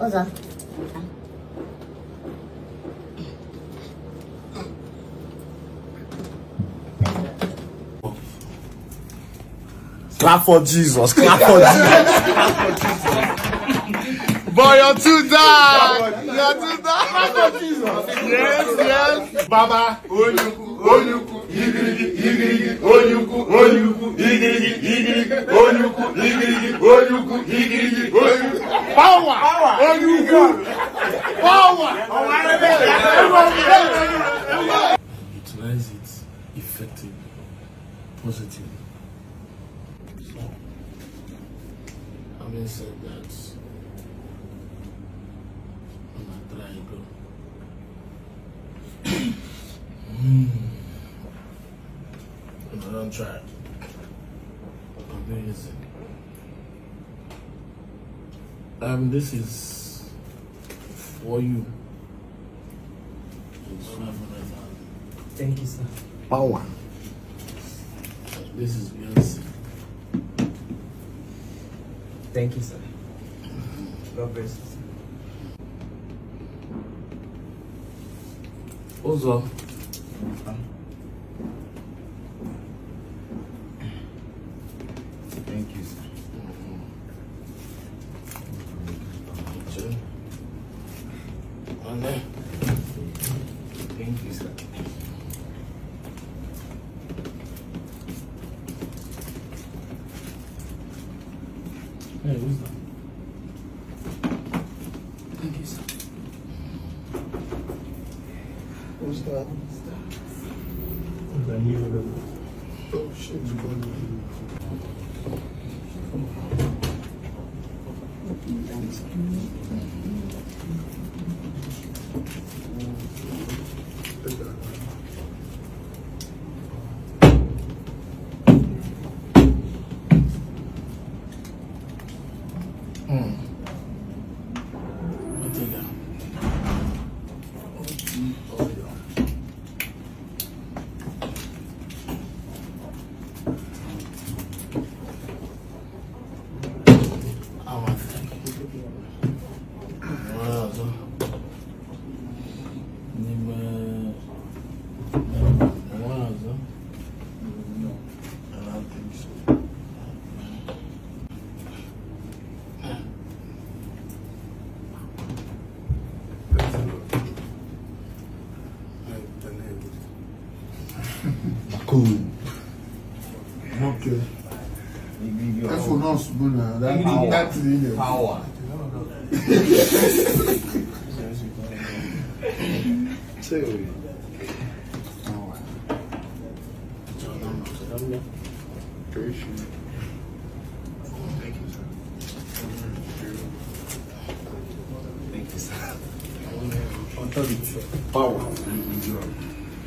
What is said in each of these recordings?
Ozan. Clap for Jesus. Clap for Jesus. Boy, you're too dark. You're too dark. Clap for Jesus. Yes, yes. Baba, Onyuku, Onyuku, Igirigi, Igirigi, Onyuku, Onyuku, Igirigi, Igirigi, Onyuku, Igirigi, Onyuku, Power. Power. you good. Power. Utilize it effectively, positively. So, Having said that, I'm not trying to. Hmm. I'm not trying. I'm not using um, this is for you. Thank you, sir. Power. This is yours. Thank you, sir. God bless you. Ну что, ладно. Данила. Thank you. cool. Okay. That's for us, Buna. That, power. power. Power.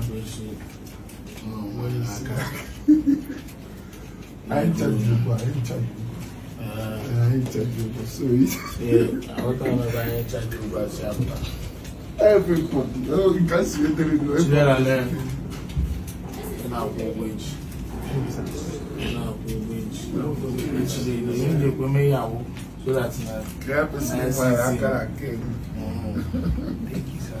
abẹ́ṣe ọmọ ìlàkà. I interviewed you, I interviewed you. Uh, I interviewed you, so it. Yeah, I was talking about interview, but after. Everybody, oh, you can't see it anymore. Sierra Leone. In our language. In our language. Literally, in the end, we may have so that. Grab uh, a snake by Akara again. Mm-hmm. Thank you, sir.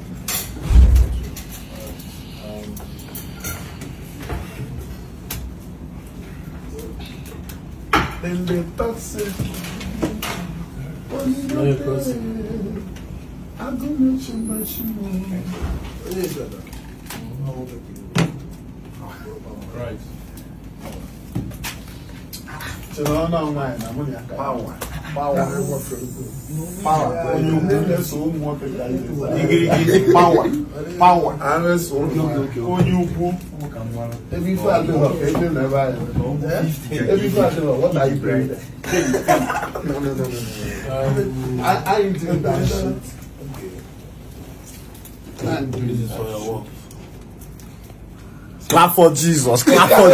Then they pass it. i don't know mention my shimo. Right. So now, now, power power onye ukwu eso ụmụ nwoke ka igirigi power power onye ukwu ebe ife adịrọ ka ebe na ebe anyị ebe ife adịrọ what are you praying no no no no I ain't doing that shit clap for Jesus clap for Jesus clap for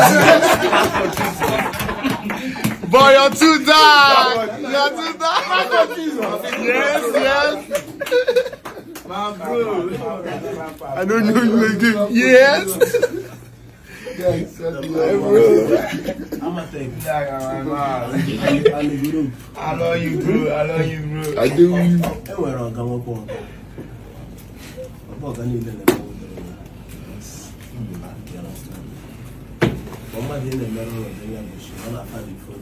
Jesus Boy, you're too dark. You're too dark. yes, yes. Man, bro. I don't know you again. Yes. Yes, I'm gonna take that around my I love you, bro. I love you, bro. I do. Everywhere I come up on. I'm not going to do that. I'm not going to do that.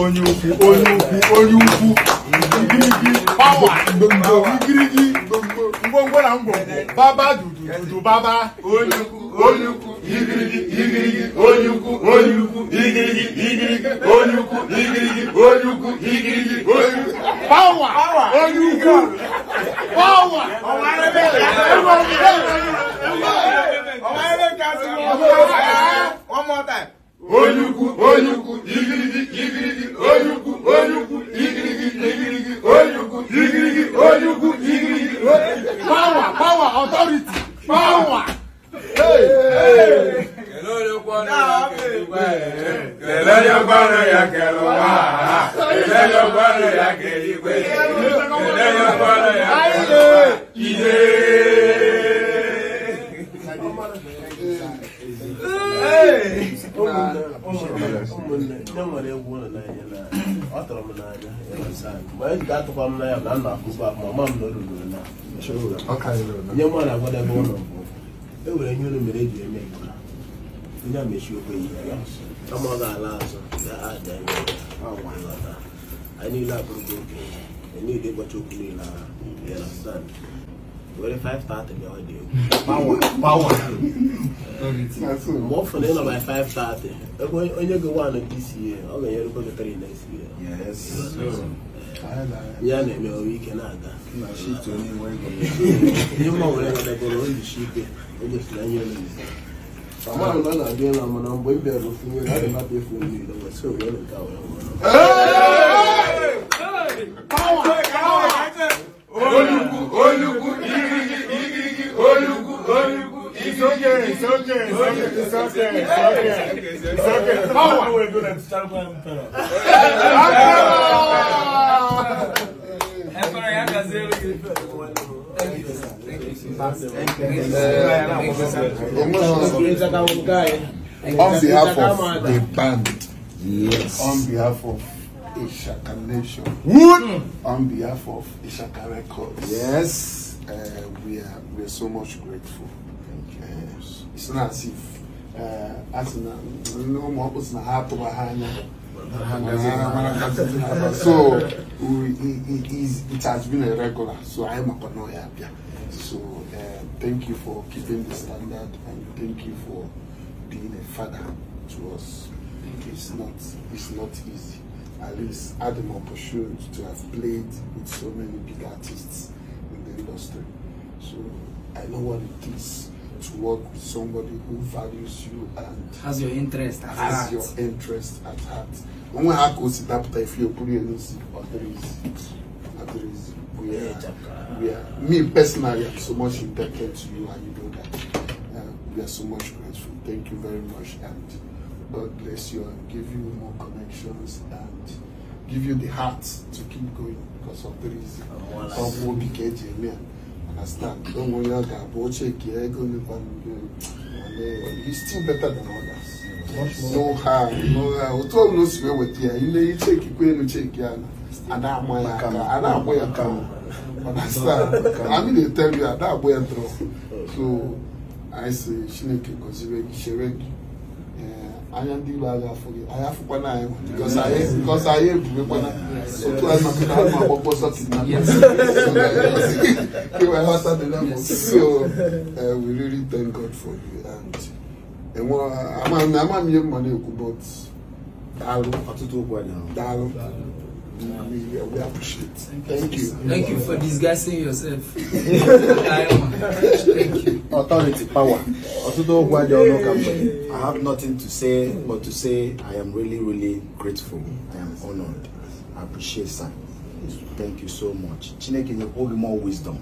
onye ukwu onye ukwu onye ukwu igirigi pawa igirigi ngwongwo na ngwongwo baba dudu baba onye ukwu onye ukwu igirigi igirigi onye ukwu onye ukwu igirigi igirigi onye ukwu igirigi onye ukwu igirigi onye ukwu pawa onye ukwu pawa ọwa ebe ẹgbẹ ọgbẹ ọwa ebe kasi ọmọ ọmọ ta onye ukwu onye ukwu igirigi. igirigi, öyugu, öyugu, igirigi, igirigi, öyugu, igirigi. mgbe anyị ji atụkwa n'anya na nna akụkọ akụ mama m na olulu na nye mụ na agwadebe ụlọ bụ e nwere ihe olu mere eji eme ndị onye mechi okwe ya kama ga-ala azụ anyị niile abụrụgo okenye ihe niile gbacha okwu niile agha were five na bịa ọ dị egwu gbanwa ma ọ fụrụ ịnọ by five thirty ebe onye go one nke isi ya ọ ga-enyerukwa gị three na isi ya ya na-eme ọrụ ike na-aga ihe mma were nwadagoro oyishi ike o gosiri anya olizi amaghị na ọ na-abịa ịla mana mgbe m bịara ofu nwere a ga-anapụ efu mmiri ụwa so wee nke a were mmanụ okay, it's okay, it's okay, it's okay, it's okay. It's okay. It's okay. On behalf of the band. Yes. On behalf of Ishaka Nation. Mm. On behalf of Ishaka Records. Yes. Uh, we are we are so much grateful it's not safe as na nne ụmụ ọkpụ na ha atụba ha anya so it has been a regular so I am a connoisseur. so uh, thank you for keeping the standard and thank you for being a father to us it's not it's not easy at least had an opportunity to have played with so many big artists in the industry so i know what it is to work with somebody who values you and has your interest at has heart. your interest at heart. When we Wọ́n á kó sí dápútà ìfi òkúrú ẹ̀ ní sí ọ̀dẹ́rẹ́sì. Ọ̀dẹ́rẹ́sì. We are, we are, me personally, I'm so much indebted to you and you know that. Uh, we are so much grateful. Thank you very much and God bless you and give you more connections and give you the heart to keep going because of the reason. Ọmọ Obikeji, amen understand. Don't worry, I'll check it. He's still better than others. No harm, no harm. Otu no sibe wetia. Ile check ikwe no check ya na. Ada amoya ka, ada amoya ka. Understand? I mean they tell you that boy amoya throw. So I say she Chineke consider Chineke. Eh, anya ndi ba ga fugi. I have na ayo because aye because I bube kwa na surtout elle m'a fait elle m'a proposé ça c'est not so uh, we really thank God for you and ẹwọn àmà mi àmà mi yẹ mọ ní èkó but dàrú àtúntò ògbà We, appreciate. Thank you. Thank you for disguising yourself. Thank you. Authority, power. I have nothing to say but to say I am really, really grateful. I am honored. I appreciate sir. Thank you so much. Chineke nyekwa hold more wisdom.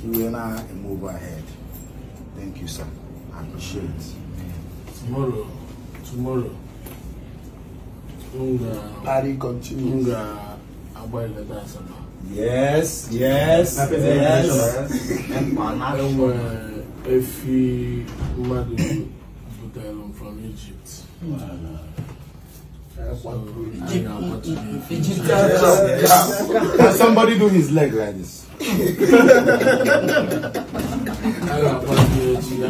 He will now move ahead. Thank you sir. I appreciate it. Tomorrow, tomorrow, Unga, party continues. Unga, Abuela Dasama. Yes, yes, yes. yes. Uh, Efi Madu Butelum from Egypt. Can somebody do his leg like this?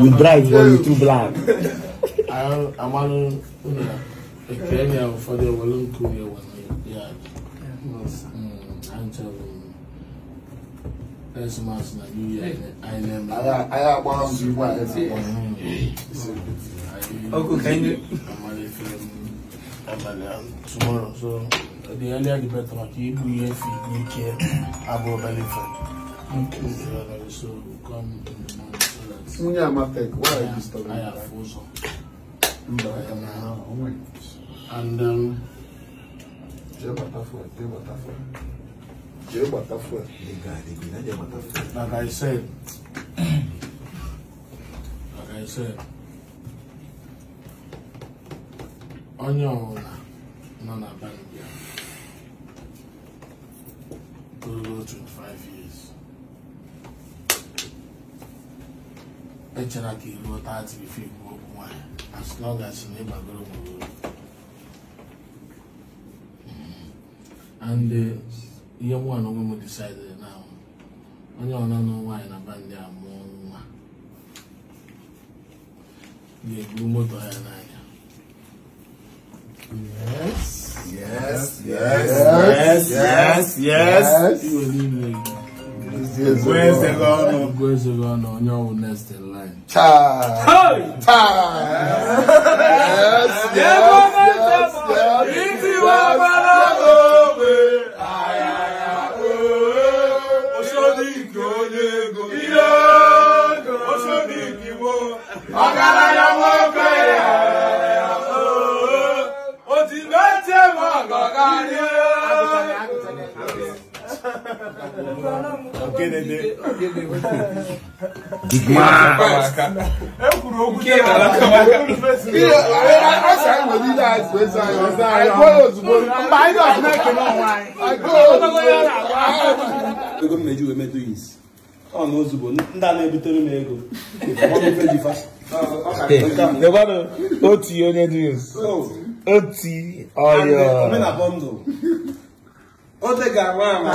you black, but you too black. I'm on a Kenya for the Walloon Korea one. Yeah, yard. I'm telling you, That's last month, New Year, I am. I have one, you want to see. Okay, can you? tomorrow. So the earlier the better. Like Ibu here, Ibu here, Abu Balifan. Okay. So come in the morning. why are you I have frozen. And um. Jẹ́ bàtà fún ẹ, Like I said, like I said. onye ọbụla nọ na Bambia ruru 25 years echera ka iruo 30 bifo ikwu okwu nwanyị as long as na ịgbagoro nwere hmm. and uh, ihe nwa na onwe m decide na onye ọbụla nọ nwaanyị na Bambia mụọ nwa ga-eburu moto ya n'anya Yes. Yes. Yes. Yes. Yes. Yes. yes. yes. yes. Where's the gun? Where's the gun? On your next in line. Time. Time. Yes. Yes. yes. yes. yes. yes. yes. yes. Big man. Oh, ego m meji wee ya isi ọ na ozugbo ndị a na-ebutere m ego debana oti onye dus oti ọyọ oge ga-ama